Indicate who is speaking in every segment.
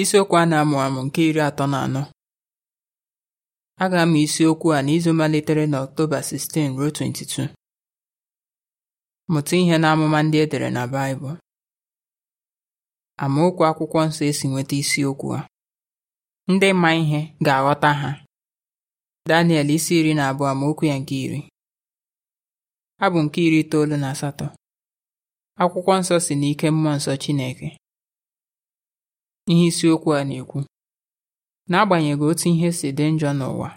Speaker 1: isiokwu a na-amụ amụ nke iri atọ na anọ a ga-amụ isiokwu a n'izu malitere na Ọktoba 16 ruo 22 mụta ihe na amụma ndị edere dere na Baịbụl amaokwu akwụkwọ nsọ esi nweta isiokwu a ndị ma ihe ga-aghọta ha Daniel isi iri na abụọ amaokwu ya nke iri abụ nke iri itoolu na asatọ akwụkwọ nsọ si n'ike mmụọ nsọ Chineke ihe isiokwu a na-ekwu n'agbanyeghị otu ihe si dị njọ n'ụwa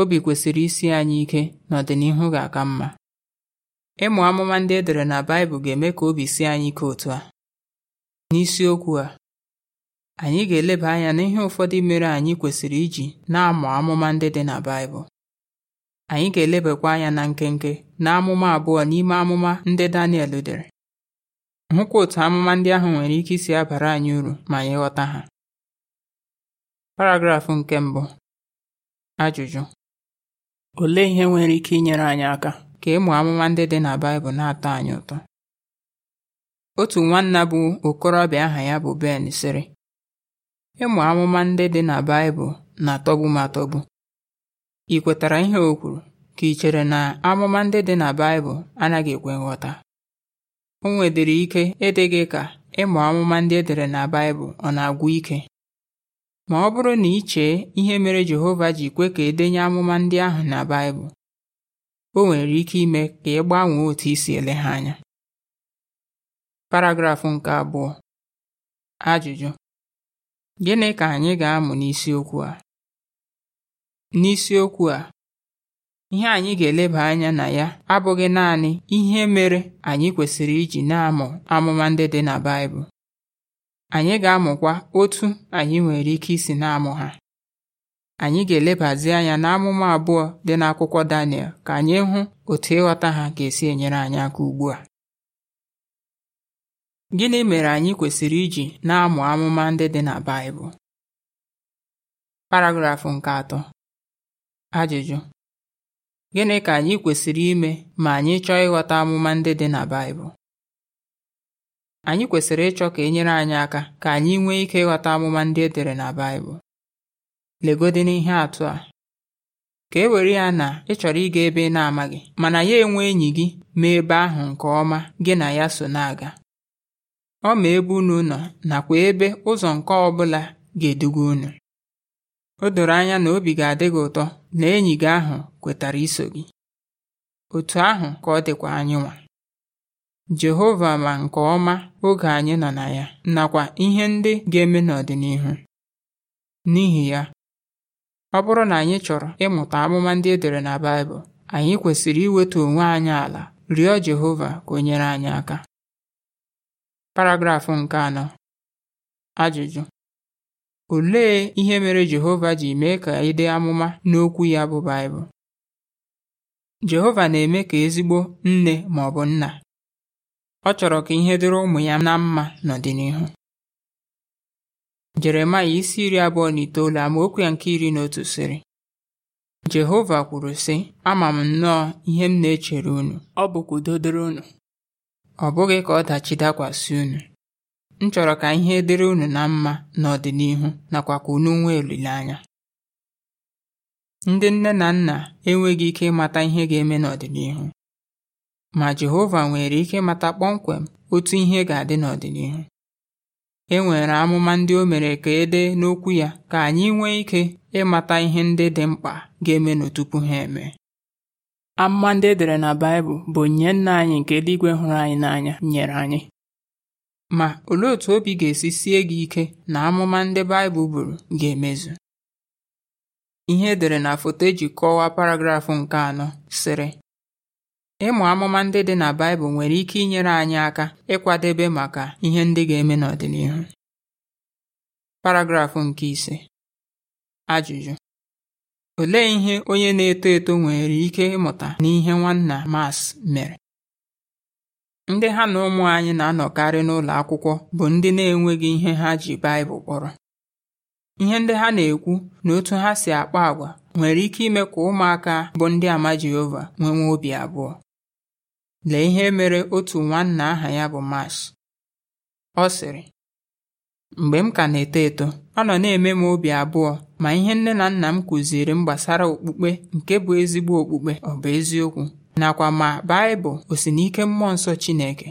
Speaker 1: obi kwesịrị isi anyị ike n'ọdịnihu ga-aka mma ịmụ amụma ndị e dere na Baịbụl ga-eme ka obi sie anyị ike otu a n'isiokwu a anyị ga-eleba anya n'ihe ụfọdụ mere anyị kwesịrị iji na-amụ amụma ndị dị na Baịbụl anyị ga-elebakwa anya na nkenke na amụma abụọ n'ime amụma ndị Daniel dere Hụkwa otu amụma ndị ahụ nwere ike isi abara anyị uru ma anyị ha. Paragraf nke mbụ Ajụjụ Olee ihe nwere ike inyere anyị aka ka ịmụ amụma ndị dị na Baịbụl na-atọ anyị ụtọ? Otu nwanna bụ okorobịa aha ya bụ Ben sịrị, Ịmụ amụma ndị dị na Baịbụl na-atọgbu m atọgbu. Ị kwetara ihe o kwuru ka ị chere na amụma ndị dị na Baịbụl anaghị ekwe nghọta? O nwedịrị ike ịdị gị ka ịmụ amụma ndị e dere na Baịbụl ọ na-agwụ ike ma ọ bụrụ na i chee ihe mere Jehova ji kwe ka edenye amụma ndị ahụ na Baịbụl o nwere ike ime ka ị gbanwee otu isi ele ha anya paragrafụ nke abụọ ajụjụ gịnị ka anyị ga-amụ n'isiokwu a n'isiokwu a Ihe anyị ga-eleba anya na ya abụghị naanị ihe mere anyị kwesịrị iji na-amụ amụma ndị dị na Baịbụl. Anyị ga-amụkwa otu anyị nwere ike isi na-amụ ha. Anyị ga-elebazi anya na amụma abụọ dị n'akwụkwọ Daniel ka anyị hụ otu ịghọta ha ka esi enyere anyị aka ugbu a. Gịnị mere anyị kwesịrị iji na-amụ amụma ndị dị na Baịbụl? Paragrafụ nke atọ. Ajụjụ: Gịnị ka anyị kwesịrị ime ma anyị chọọ ịghọta amụma ndị dị na Baịbụl? Anyị kwesịrị ịchọ ka e nyere anyị aka ka anyị nwee ike ịghọta amụma ndị e dere na Baịbụl. Legodị n'ihe atụ a. Ka e were ya na ị chọrọ ịga ebe ị na-amaghị mana ya enwe enyi gị ma ebe ahụ nke ọma gị na ya so na-aga. Ọ ma ebe unu nọ nakwa ebe ụzọ nke ọbụla ga-eduga unu. O doro anya na obi ga-adị gị ụtọ na enyi gị ahụ kwetara iso gị. Otu ahụ ka ọ dịkwa anyị nwa. Jehova ma nke ọma oge anyị nọ na ya nakwa ihe ndị ga-eme n'ọdịnihu. N'ihi ya, ọ bụrụ na anyị chọrọ ịmụta amụma ndị e dere na Baịbụl, anyị kwesịrị iweta onwe anyị ala rịọ Jehova ka o nyere anyị aka. Paragraf nke anọ. Ajụjụ Olee ihe mere Jehova ji mee ka ịdị amụma n'okwu ya bụ Baịbụl? Jehova na-eme ka ezigbo nne ma ọ bụ nna. Ọ chọrọ ka ihe dịrị ụmụ ya na mma n'ọdịnihu. Jeremaya isi iri abụọ na itoolu okwu ya nke iri na otu sịrị Jehova kwuru sị ama m nnọọ ihe m na-echere unu ọ bụkwa udo dịrị unu ọ bụghị ka ọdachi dakwasị unu m chọrọ ka ihe dịrị unu na mma n'ọdịnihu nakwa ka unu nwee olileanya ndị nne na nna enweghị ike ịmata ihe ga-eme n'ọdịnihu ma Jehova nwere ike ịmata kpọmkwem otu ihe ga-adị n'ọdịnihu e nwere amụma ndị o mere ka e dee n'okwu ya ka anyị nwee ike ịmata ihe ndị dị mkpa ga-eme n'otupu ha eme amụma ndị edere na Baịbụl bụ onyinye nna anyị nke eluigwe hụrụ anyị n'anya nyere anyị Ma olee otú obi ga-esi sie gị ike na amụma ndị Baịbụl buru ga-emezu? Ihe edere na foto eji kọwaa paragrafụ nke anọ sịrị Ịmụ amụma ndị dị na Baịbụl nwere ike inyere anyị aka ịkwadebe maka ihe ndị ga-eme n'ọdịnihu. Paragrafụ nke ise Ajụjụ Olee ihe onye na-eto eto nwere ike ịmụta n'ihe Nwanna mas mere? ndị ha na ụmụ anyị na-anọkarị n'ụlọ akwụkwọ bụ ndị na-enweghị ihe ha ji Baịbụl kpọrọ ihe ndị ha na-ekwu na otu ha si akpa agwa nwere ike ime ka ụmụaka bụ ndị ama Jehova nwewe obi abụọ lee ihe mere otu nwanna aha ya bụ Mash ọ sịrị mgbe m ka na-eto eto ọ nọ na-eme m obi abụọ ma ihe nne na nna m kụziri m gbasara okpukpe nke bụ ezigbo okpukpe ọ bụ eziokwu nakwa ma Baịbụl o si n'ike mmụọ nsọ Chineke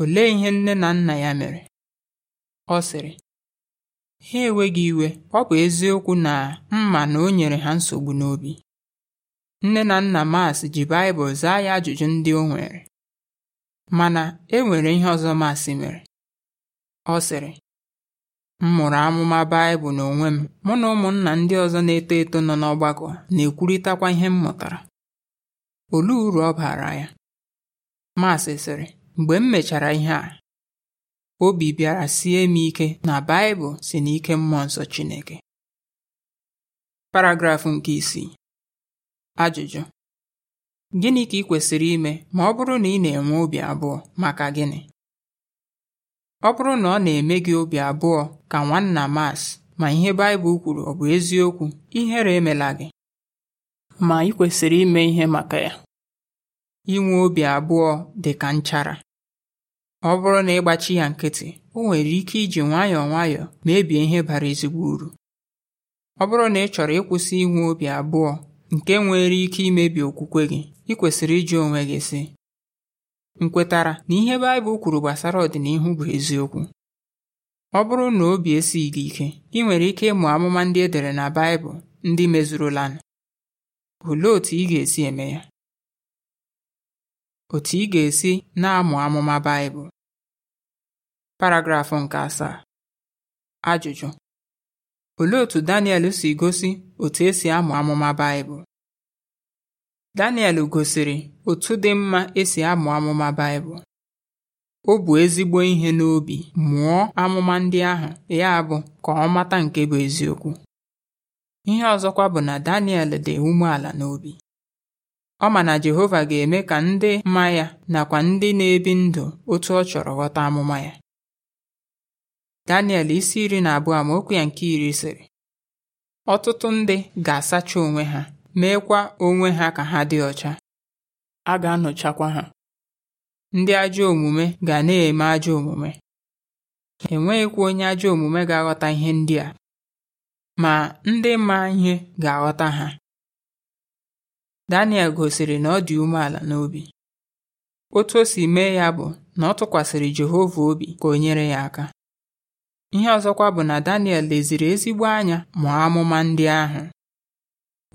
Speaker 1: olee ihe nne na nna ya mere ọ sịrị ha enweghị iwe ọ bụ eziokwu na mma na o nyere ha nsogbu n'obi nne na nna Mas ji Baịbụl zaa ya ajụjụ ndị o nwere mana e nwere ihe ọzọ Mas mere ọ sịrị m mụrụ amụma Baịbụl n'onwe m mụ na ụmụnna ndị ọzọ na-eto eto nọ n'ọgbakọ na-ekwurịtakwa ihe m mụtara olee uru ọ baara ya Maasị sịrị mgbe m mechara ihe a obi bịara sie m ike na Baịbụl si n'ike mmụọ nsọ Chineke paragrafụ nke isii ajụjụ gịnị ka ị kwesịrị ime ma ọ bụrụ na ị na-enwe obi abụọ maka gịnị ọ bụrụ na ọ na-eme gị obi abụọ ka nwanna mas ma ihe Baịbụl kwuru ọ bụ eziokwu ihere emela gị ma ị kwesịrị ime ihe maka ya inwe obi abụọ dị ka nchara ọ bụrụ na ịgbachi ya nkịtị o nwere ike iji nwayọọ nwayọọ mebie ihe bara ezigbo uru ọ bụrụ na ị chọrọ ịkwụsị inwe obi abụọ nke nwere ike imebi okwukwe gị ị kwesịrị iji onwe gị sị Nkwetara na ihe Baịbụl kwuru gbasara ọdịnihu bụ eziokwu ọ bụrụ na obi esighị gị ike ị nwere ike ịmụ amụma ndị edere na Baịbụl ndị mezurula olee otú ị ga-esi eme ya otu ị ga-esi na-amụ amụma Baịbụl paragraf nke asaa ajụjụ olee otu Daniel si gosi otu esi amụ amụma Baịbụl Daniel gosiri otu dị mma esi amụ amụma Baịbụl o bu ezigbo ihe n'obi mụọ amụma ndị ahụ ya bụ ka ọ mata nke bụ eziokwu ihe ọzọkwa bụ na Daniel dị umeala n'obi ọ ma na Jehova ga-eme ka ndị ma ya nakwa ndị na-ebi ndụ otu ọ chọrọ ghọta amụma ya Daniel isi iri na abụọ ma okwu ya nke iri sịrị ọtụtụ ndị ga-asacha onwe ha meekwa onwe ha ka ha dị ọcha a ga-anọchakwa ha ndị ajọ omume ga na-eme ajọ omume enweghịkwa onye ajọ omume ga-aghọta ihe ndị a ma ndị ma ihe ga-aghọta ha Daniel gosiri na ọ dị umeala n'obi. Otu o si mee ya bụ na ọ tụkwasịrị Jehova obi ka o nyere ya aka. Ihe ọzọkwa bụ na Daniel leziri ezigbo anya mụọ amụma ndị ahụ.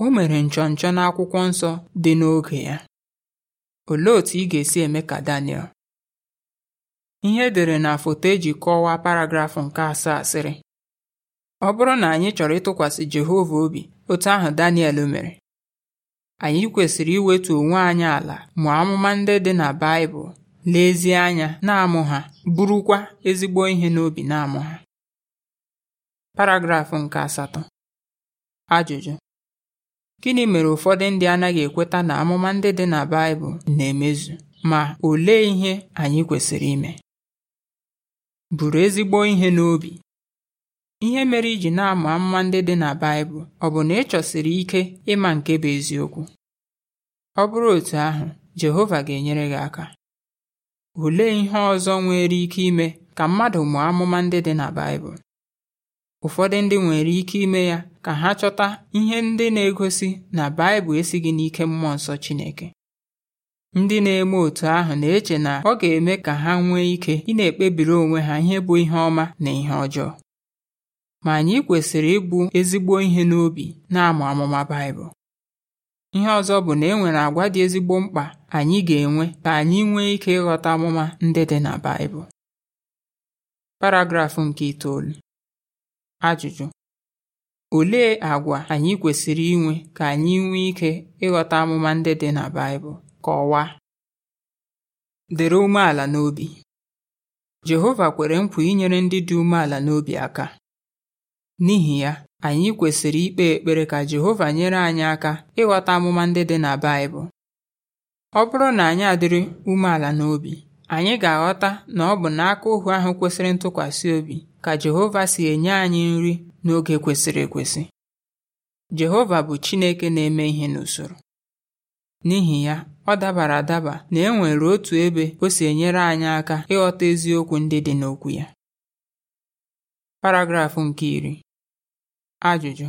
Speaker 1: O mere nchọnchọ n'akwụkwọ nsọ dị n'oge ya. Olee otú ị ga-esi eme ka Daniel? Ihe edere na foto eji kọwaa paragrafụ nke asaa sịrị: Ọ bụrụ na anyị chọrọ ịtụkwasị Jehova obi otu ahụ Daniel mere anyị kwesịrị iwetu onwe anyị ala ma amụma ndị dị na Baịbụl lezie anya na-amụ ha bụrụkwa ezigbo ihe n'obi na-amụ ha paragrafụ nke asatọ ajụjụ gịnị mere ụfọdụ ndị anaghị ekweta na amụma ndị dị na Baịbụl na-emezu ma olee ihe anyị kwesịrị ime buru ezigbo ihe n'obi Ihe mere iji na-ama amụma ndị dị na Baịbụl ọ bụ na ị chọsiri ike ịma nke bụ eziokwu? Ọ bụrụ otu ahụ, Jehova ga-enyere gị aka. Olee ihe ọzọ nwere ike ime ka mmadụ mụọ amụma ndị dị na Baịbụl? Ụfọdụ ndị nwere ike ime ya ka ha chọta ihe ndị na-egosi na Baịbụl esighị n'ike Mmụọ Nsọ Chineke. Ndị na-eme otu ahụ na-eche na ọ ga-eme ka ha nwee ike ị na-ekpebiri onwe ha ihe bụ ihe ọma na ihe ọjọọ. ma anyị kwesịrị ịbụ ezigbo ihe n'obi na-amụ amụma Baịbụl. Ihe ọzọ bụ na e nwere agwa dị ezigbo mkpa anyị ga-enwe ka anyị nwee ike ịghọta amụma ndị dị na Baịbụl. Paragraf nke itoolu Ajụjụ Olee agwa anyị kwesịrị inwe ka anyị nwee ike ịghọta amụma ndị dị na Baịbụl? Kọwaa. Dịrị umeala n'obi Jehova kwere nkwa inyere ndị dị umeala n'obi aka N'ihi ya, anyị kwesịrị ikpe ekpere ka Jehova nyere anyị aka ịghọta amụma ndị dị na Baịbụl. Ọ bụrụ na anyị adịrị umeala n'obi, anyị ga-aghọta na ọ bụ n'aka ohu ahụ kwesịrị ntụkwasị obi ka Jehova si enye anyị nri n'oge kwesịrị ekwesị. Jehova bụ Chineke na-eme ihe n'usoro. N'ihi ya, ọ dabara adaba na e nwere otu ebe o si enyere anyị aka ịghọta eziokwu ndị dị n'okwu ya. Paragraf nke iri Ajụjụ: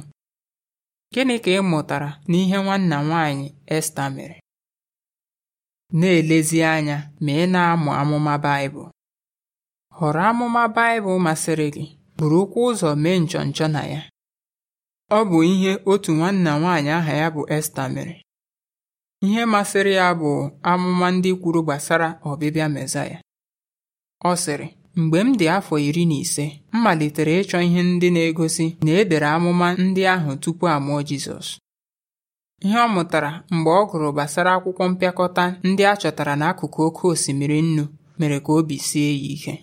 Speaker 1: Gịnị ka ị mụtara n'ihe nwanna nwaanyị?" Esta mere? Na-elezi anya ma ị na-amụ amụma Baịbụl. Họrọ amụma Baịbụl masịrị gị bụrụ okwu ụzọ mee nchọnchọ na ya. Ọ bụ ihe otu nwanna nwaanyị aha ya bụ Esta mere. Ihe masịrị ya bụ amụma ndị kwuru gbasara ọbịbịa Mesaya. Ọ sịrị Mgbe m dị afọ iri na ise m malitere ịchọ ihe ndị na-egosi na e dere amụma ndị ahụ tupu a mụọ Jizọs ihe ọ mụtara mgbe ọ gụrụ gbasara akwụkwọ mpịakọta ndị a chọtara n'akụkụ oké osimiri nnu mere ka obi sie ya ike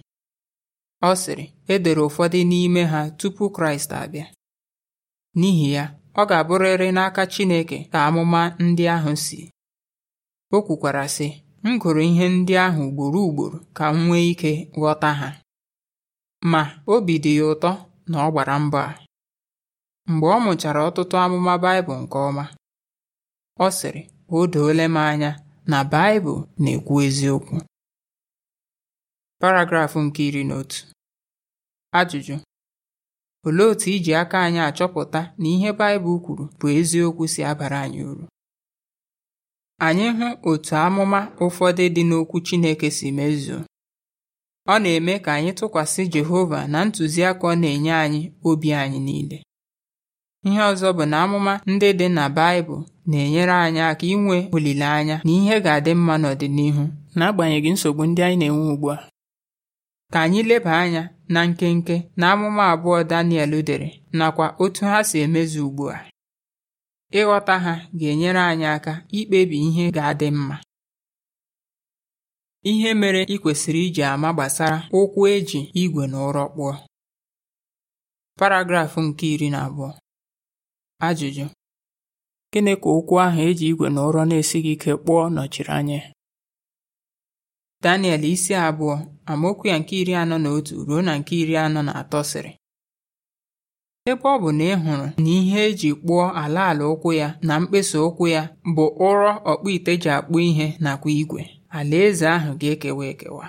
Speaker 1: ọ sịrị e dere ụfọdụ n'ime ha tupu Kraịst abịa n'ihi ya ọ ga-abụrịrị n'aka Chineke ka amụma ndị ahụ si o kwukwara sị M gụrụ ihe ndị ahụ ugboro ugboro ka m nwee ike ghọta ha ma obi dị ya ụtọ na ọ gbara mbọ a mgbe ọ mụchara ọtụtụ amụma Baịbụl nke ọma ọ sịrị o doole m anya na Baịbụl na-ekwu eziokwu paragrafụ nke iri na otu ajụjụ olee otu iji aka anyị achọpụta na ihe Baịbụl kwuru bụ eziokwu si abara anyị uru anyị hụ otu amụma ụfọdụ dị n'Okwu Chineke si mezuo ọ na-eme ka anyị tụkwasị Jehova na ntụziaka ọ na-enye anyị obi anyị niile ihe ọzọ bụ na amụma ndị dị na Baịbụl na-enyere anyị aka inwe olileanya na ihe ga-adị mma n'ọdịnihu n'agbanyeghị nsogbu ndị anyị na-enwe ugbu a ka anyị leba anya na nkenke na amụma abụọ Daniel dere nakwa otu ha si emezu ugbu a Ịghọta ha ga-enyere anyị aka ikpebi ihe ga-adị mma. Ihe mere ị kwesịrị iji ama gbasara ụkwụ eji ígwè igwe na ụrọ kpụọ. Paragraf nke iri na abụọ. Ajụjụ: Gịnị ka ụkwụ ahụ eji ji igwe na ụrọ na-esighị ike kpụọ nọchiri anya Daniel isi abụọ amaokwu ya nke iri anọ na otu ruo na nke iri anọ na atọ sịrị Ebe ọ bụ na ị hụrụ na ihe eji kpụọ ala ala ụkwụ ya na mkpesa ụkwụ ya bụ ụrọ ọkpụite ji akpụ ihe nakwa igwe, alaeze ahụ ga-ekewa ekewa.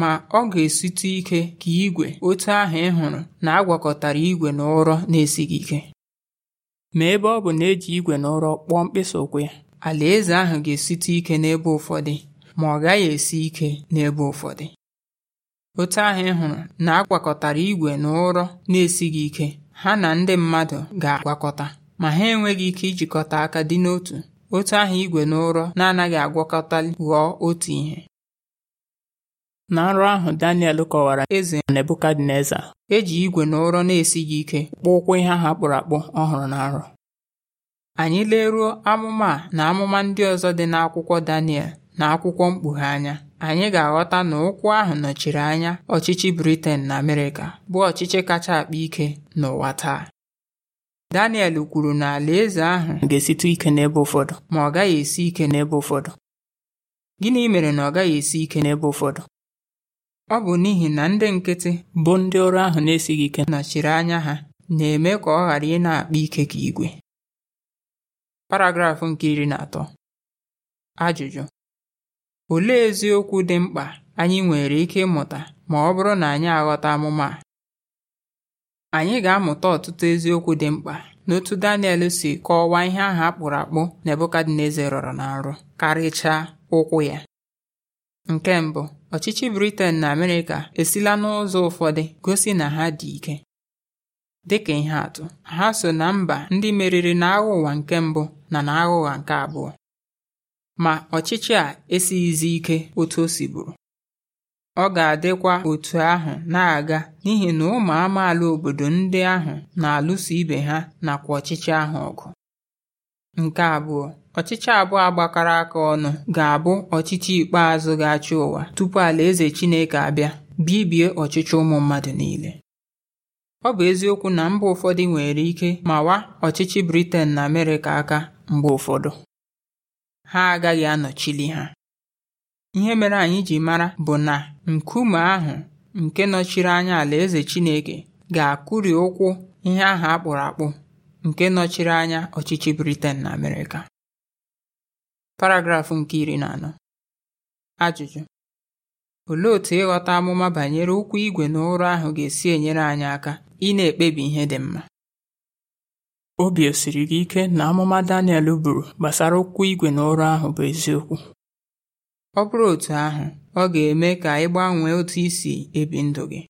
Speaker 1: Ma ọ ga esite ike ka igwe otu ahụ ị hụrụ na agwakọtara igwe na ụrọ na-esighị ike. Ma ebe ọ bụ na eji igwe na ụrọ kpụọ mkpesa ụkwụ ya, alaeze ahụ ga esite ike n'ebe ụfọdụ ma ọ gaghị esi ike n'ebe ụfọdụ. Otu ahụ ị hụrụ na agwakọtara igwe na ụrọ na-esighị ike ha na ndị mmadụ ga-agwakọta, ma ha enweghị ike ijikọta aka dị n'otu, otu ahụ igwe na ụrọ na-anaghị agwakọta ghọọ otu ihe. Na nrọ ahụ Daniel kọwara eze Nebukadneza eji igwe na ụrọ na-esighị ike kpụọ ụkwụ ihe ha kpụrụ akpụ ọhụrụ hụrụ na nrọ. Anyị leruo amụma na amụma ndị ọzọ dị n'akwụkwọ Daniel na akwụkwọ Mkpughe anya anyị ga-aghọta na ụkwụ ahụ nọchiri anya ọchịchị Britain na Amerịka bụ ọchịchị kacha akpa ike n'ụwa taa Daniel kwuru na alaeze ahụ ga-esite ike n'ebe ụfọdụ ma ọ gaghị esi ike n'ebe ụfọdụ gịnị mere na ọ gaghị esi ike n'ebe ụfọdụ ọ bụ n'ihi na ndị nkịtị bụ ndị ọrụ ahụ na-esighị ike nọchiri anya ha na-eme ka ọ ghara ị na-akpa ike ka igwe paragrafụ nke iri na atọ ajụjụ Olee eziokwu dị mkpa anyị nwere ike ịmụta ma ọ bụrụ na anyị aghọta amụma a? Anyị ga-amụta ọtụtụ eziokwu dị mkpa n'otu Daniel si kọwaa ihe ahụ a kpụrụ akpụ Nebukadneza rọrọ na nrọ karịchaa ụkwụ ya. Nke mbụ, ọchịchị Britain na Amerịka esila n'ụzọ ụfọdụ gosi na ha dị ike. Dịka ihe atụ, ha so na mba ndị meriri n'agha ụwa nke mbụ na n'agha ụwa nke abụọ. ma ọchịchị a esighịzi ike otu o si bụrụ ọ ga-adịkwa otu ahụ na-aga n'ihi na ụmụ amaala obodo ndị ahụ na-alụso ibe ha nakwa ọchịchị ahụ ọgụ nke abụọ ọchịchị abụọ agbakọrọ aka ọnụ ga-abụ ọchịchị ikpeazụ ga-achị ụwa tupu alaeze Chineke abịa bibie ọchịchị ụmụ mmadụ niile ọ bụ eziokwu na mba ụfọdụ nwere ike mawa ọchịchị Britain na Amerịka aka mgbe ụfọdụ ha agaghị anọchili ha ihe mere anyị ji mara bụ na nkume ahụ nke nọchiri anya alaeze Chineke ga-akụri ụkwụ ihe ahụ a akpụrụ akpụ nke nọchiri anya ọchịchị Britain na Amerịka paragrafụ nke iri na anọ ajụjụ olee otu ịghọta amụma banyere ụkwụ igwe na ụrụ ahụ ga-esi enyere anyị aka ị na-ekpebi ihe dị mma obi osiri gị ike na amụma Daniel buru gbasara okwu igwe na ụrọ ahụ bụ eziokwu ọ bụrụ otu ahụ ọ ga-eme ka ị gbanwee otu isi ebi ndụ gị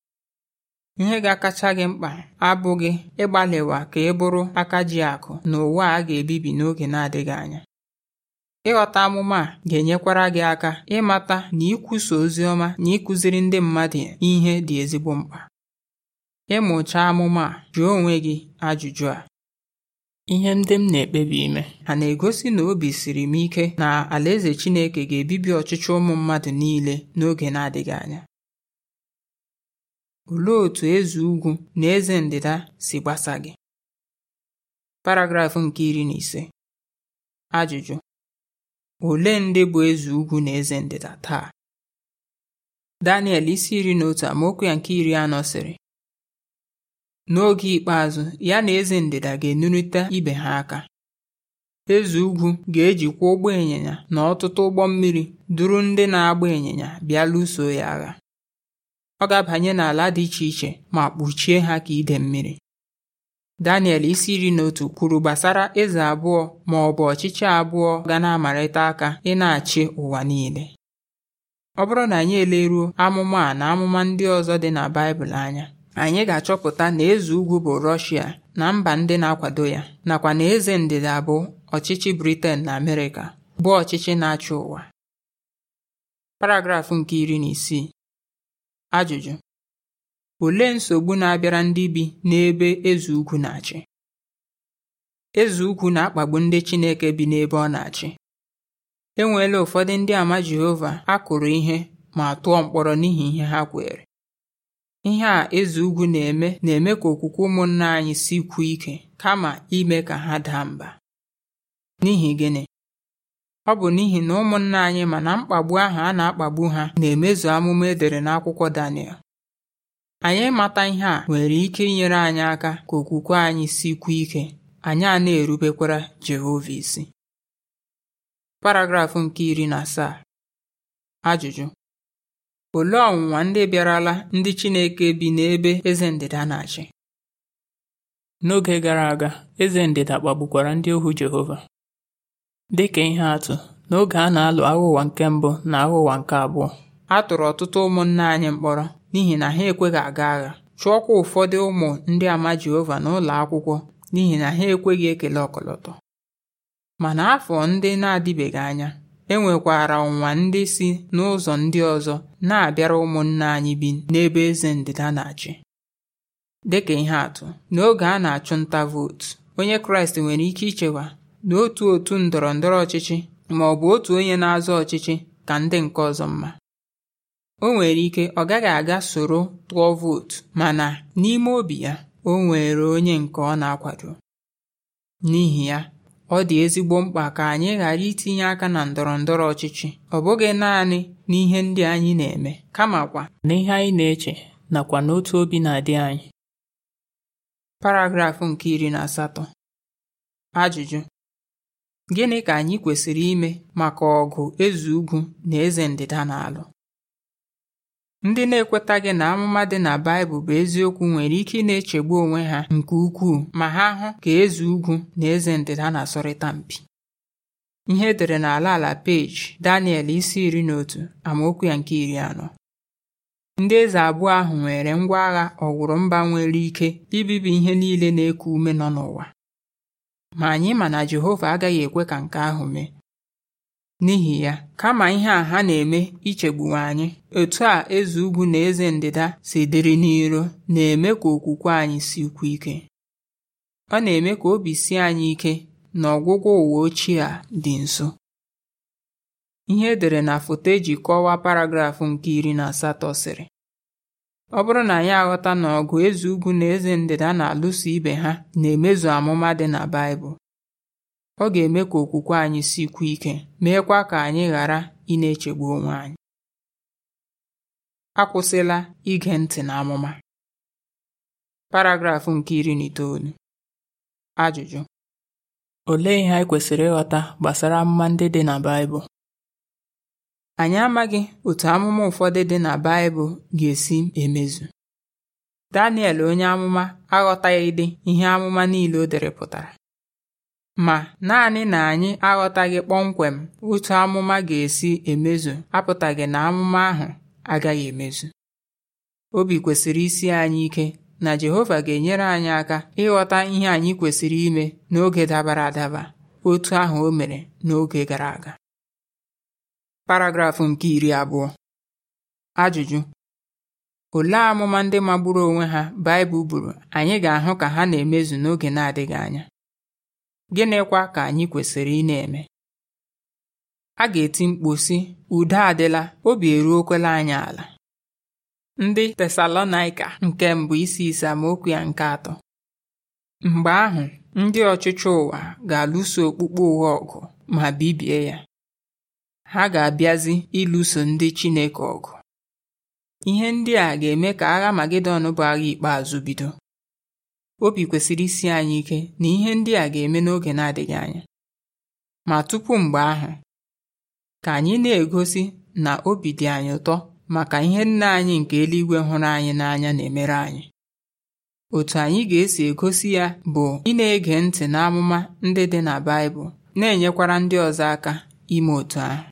Speaker 1: ihe ga-akacha gị mkpa abụghị ịgbalịwa ka ị bụrụ aka ji akụ na ụwa a ga-ebibi n'oge na-adịghị anya ịghọta amụma a ga-enyekwara gị aka ịmata na ikwusa ozi ọma na ịkụziri ndị mmadụ ihe dị ezigbo mkpa ịmụcha amụma a jụọ onwe gị ajụjụ a Ihe ndị m na-ekpebi ime ha na-egosi na obi siri m ike na Alaeze Chineke ga-ebibi ọchịchị ụmụ mmadụ niile n'oge na-adịghị anya? Olee otú eze ugwu na eze ndịda si gbasa gị? Paragraf nke iri na ise. Ajụjụ: Ole ndị bụ eze ugwu na eze ndịda taa? Daniel isi iri na otu amaokwu ya nke iri anọ sịrị N'oge ikpeazụ, ya na eze ndịda ga enurịta ibe ha aka. Eze ugwu ga-ejikwa ụgbọ ịnyịnya na ọtụtụ ụgbọ mmiri duru ndị na-agba ịnyịnya bịa lụso ya agha. Ọ ga-abanye n'ala dị iche iche ma kpuchie ha ka ide mmiri. Daniel isi iri na otu kwuru gbasara eze abụọ ma ọ bụ ọchịchị abụọ ga na-amarịta aka ị na-achị ụwa niile. Ọ bụrụ na anyị eleruo amụma a na amụma ndị ọzọ dị na Baịbụl anya, anyị ga-achọpụta na eze ugwu bụ Rọshia na mba ndị na-akwado ya nakwa na eze ndịda bụ ọchịchị Briten na Amerịka bụ ọchịchị na-achị ụwa paragrafụ nke iri na isii ajụjụ olee nsogbu na-abịara ndị bi n'ebe eze ugwu na-achị eze ugwu na-akpagbu ndị Chineke bi n'ebe ọ na-achị enweela ụfọdụ ndị ama Jehova a kụrụ ihe ma tụọ mkpọrọ n'ihi ihe ha kwere Ihe a eze ugwu na-eme na-eme ka okwukwe ụmụnna anyị si sikwuo ike kama ime ka ha daa mba. N'ihi gịnị? Ọ bụ n'ihi na ụmụnna anyị mana mkpagbu ahụ a na-akpagbu ha na-emezu amụma edere n'akwụkwọ Daniel. Anyị mata ihe a nwere ike inyere anyị aka ka okwukwe anyị si sikwuo ike anyị a na-erubekwara Jehova isi. Paragraf nke iri na asaa. Ajụjụ Olee ọnwụnwa ndị bịarala ndị Chineke bi n'ebe eze ndịda na-achị? N'oge gara aga, eze ndịda kpagbukwara ndị ohu Jehova. Dịka ihe atụ, n'oge a na-alụ Agha Ụwa nke Mbụ na Agha Ụwa nke Abụọ, a tụrụ ọtụtụ ụmụnna anyị mkpọrọ n'ihi na ha ekweghị aga agha, chụọkwa ụfọdụ ụmụ ndị ama Jehova n'ụlọ akwụkwọ n'ihi na ha ekweghị ekele ọkọlọtọ. Ma n'afọ ndị na-adịbeghị anya e nwekwara ndị si n'ụzọ ndị ọzọ na-abịara ụmụnna anyị bi n'ebe eze ndịda na-achị dịka ihe atụ n'oge a na-achụ nta vootu onye kraịst nwere ike ichewa na otu otu ndọrọ ndọrọ ọchịchị ma ọ bụ otu onye na-azọ ọchịchị ka ndị nke ọzọ mma o nwere ike ọ gaghị aga soro tụọ vootu mana n'ime obi ya o nwere onye nke ọ na-akwado n'ihi ya ọ dị ezigbo mkpa ka anyị ghara itinye aka na ndọrọ ndọrọ ọchịchị ọ bụghị naanị n'ihe ndị anyị na-eme kamakwa n'ihe anyị na-eche nakwa n'otu obi na-adị anyị paragrafụ nke iri na asatọ ajụjụ gịnị ka anyị kwesịrị ime maka ọgụ eze ugwu na eze ndịda na-alụ Ndị na-ekwetaghị na amụma dị na Baịbụl bụ eziokwu nwere ike ị na-echegbu onwe ha nke ukwuu ma ha hụ ka eze ugwu na eze ndịda na-asọrịta mpi. Ihe edere n'ala ala peji Daniel isi iri na otu amaokwu ya nke iri anọ. Ndị eze abụọ ahụ nwere ngwa agha ọwụrụ mba nwere ike ibibi ihe niile na-eku ume nọ n'ụwa. Ma anyị ma na Jehova agaghị ekwe ka nke ahụ mee. N'ihi ya, kama ihe a ha na-eme ichegbuwa anyị, otu a eze ugwu na eze ndịda si dịrị n'iro na-eme ka okwukwe anyị sikwuo ike. Ọ na-eme ka obi si anyị ike na ọgwụgwọ ụwa ochie a dị nso. Ihe edere na foto eji kọwaa paragraf nke iri na asatọ sịrị ọ bụrụ na anyị aghọta na ọgụ eze ugwu na eze ndịda na-alụso ibe ha na-emezu amụma dị na Baịbụl ọ ga-eme ka okwukwe anyị sikwuo ike meekwa ka anyị ghara ị na-echegbu onwe anyị akwụsịla ige ntị na amụma paragrafụ nke iri na itoolu ajụjụ olee ihe anyị kwesịrị ịghọta gbasara amụma ndị dị na Baịbụl anyị amaghị otu amụma ụfọdụ dị na Baịbụl ga-esi emezu Daniel onye amụma aghọtaghị dị ihe amụma niile o dere pụtara Ma, naanị na anyị aghọtaghị kpọmkwem otu amụma ga-esi emezu apụtaghị na amụma ahụ agaghị emezu. Obi kwesịrị isi anyị ike na Jehova ga-enyere anyị aka ịghọta ihe anyị kwesịrị ime n'oge dabara adaba otu ahụ o mere n'oge gara aga. Paragrafụ nke iri abụọ Ajụjụ Olee amụma ndị magburu onwe ha Baịbụl buru anyị ga-ahụ ka ha na-emezu n'oge na-adịghị anya? gịnịkwa ka anyị kwesịrị ị na-eme a ga-eti mkpu sị udo adịla obi eruokwala anyị ala ndị Tesalonaịka nke mbụ isi ise amaokwu ya nke atọ mgbe ahụ ndị ọchịchị ụwa ga-alụso okpukpe ụwa ọgụ ma bibie ya ha ga-abịazi ịlụso ndị Chineke ọgụ ihe ndị a ga-eme ka agha Magedọn bụ agha ikpeazụ bido obi kwesịrị isi anyị ike na ihe ndị a ga-eme n'oge na-adịghị anya ma tupu mgbe ahụ ka anyị na-egosi na obi dị anyị ụtọ maka ihe nna anyị nke eluigwe hụrụ anyị n'anya na-emere anyị otu anyị ga-esi egosi ya bụ ị na-ege ntị n'amụma ndị dị na Baịbụl na-enyekwara ndị ọzọ aka ime otu ahụ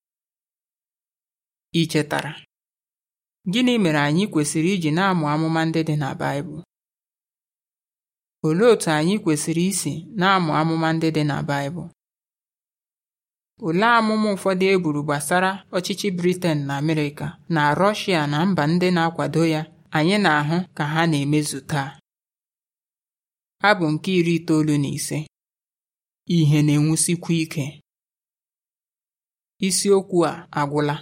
Speaker 1: ị chetara gịnị mere anyị kwesịrị iji na-amụ amụma ndị dị na Baịbụl Olee otu anyị kwesịrị isi na-amụ amụma ndị dị na Baịbụl? Olee amụma ụfọdụ e buru gbasara ọchịchị briten na Amerịka na Rọshịa na mba ndị na-akwado ya anyị na-ahụ ka ha na-emezu taa? Abụ nke iri itoolu na ise Ihe na-enwusikwa ike isiokwu a agwụla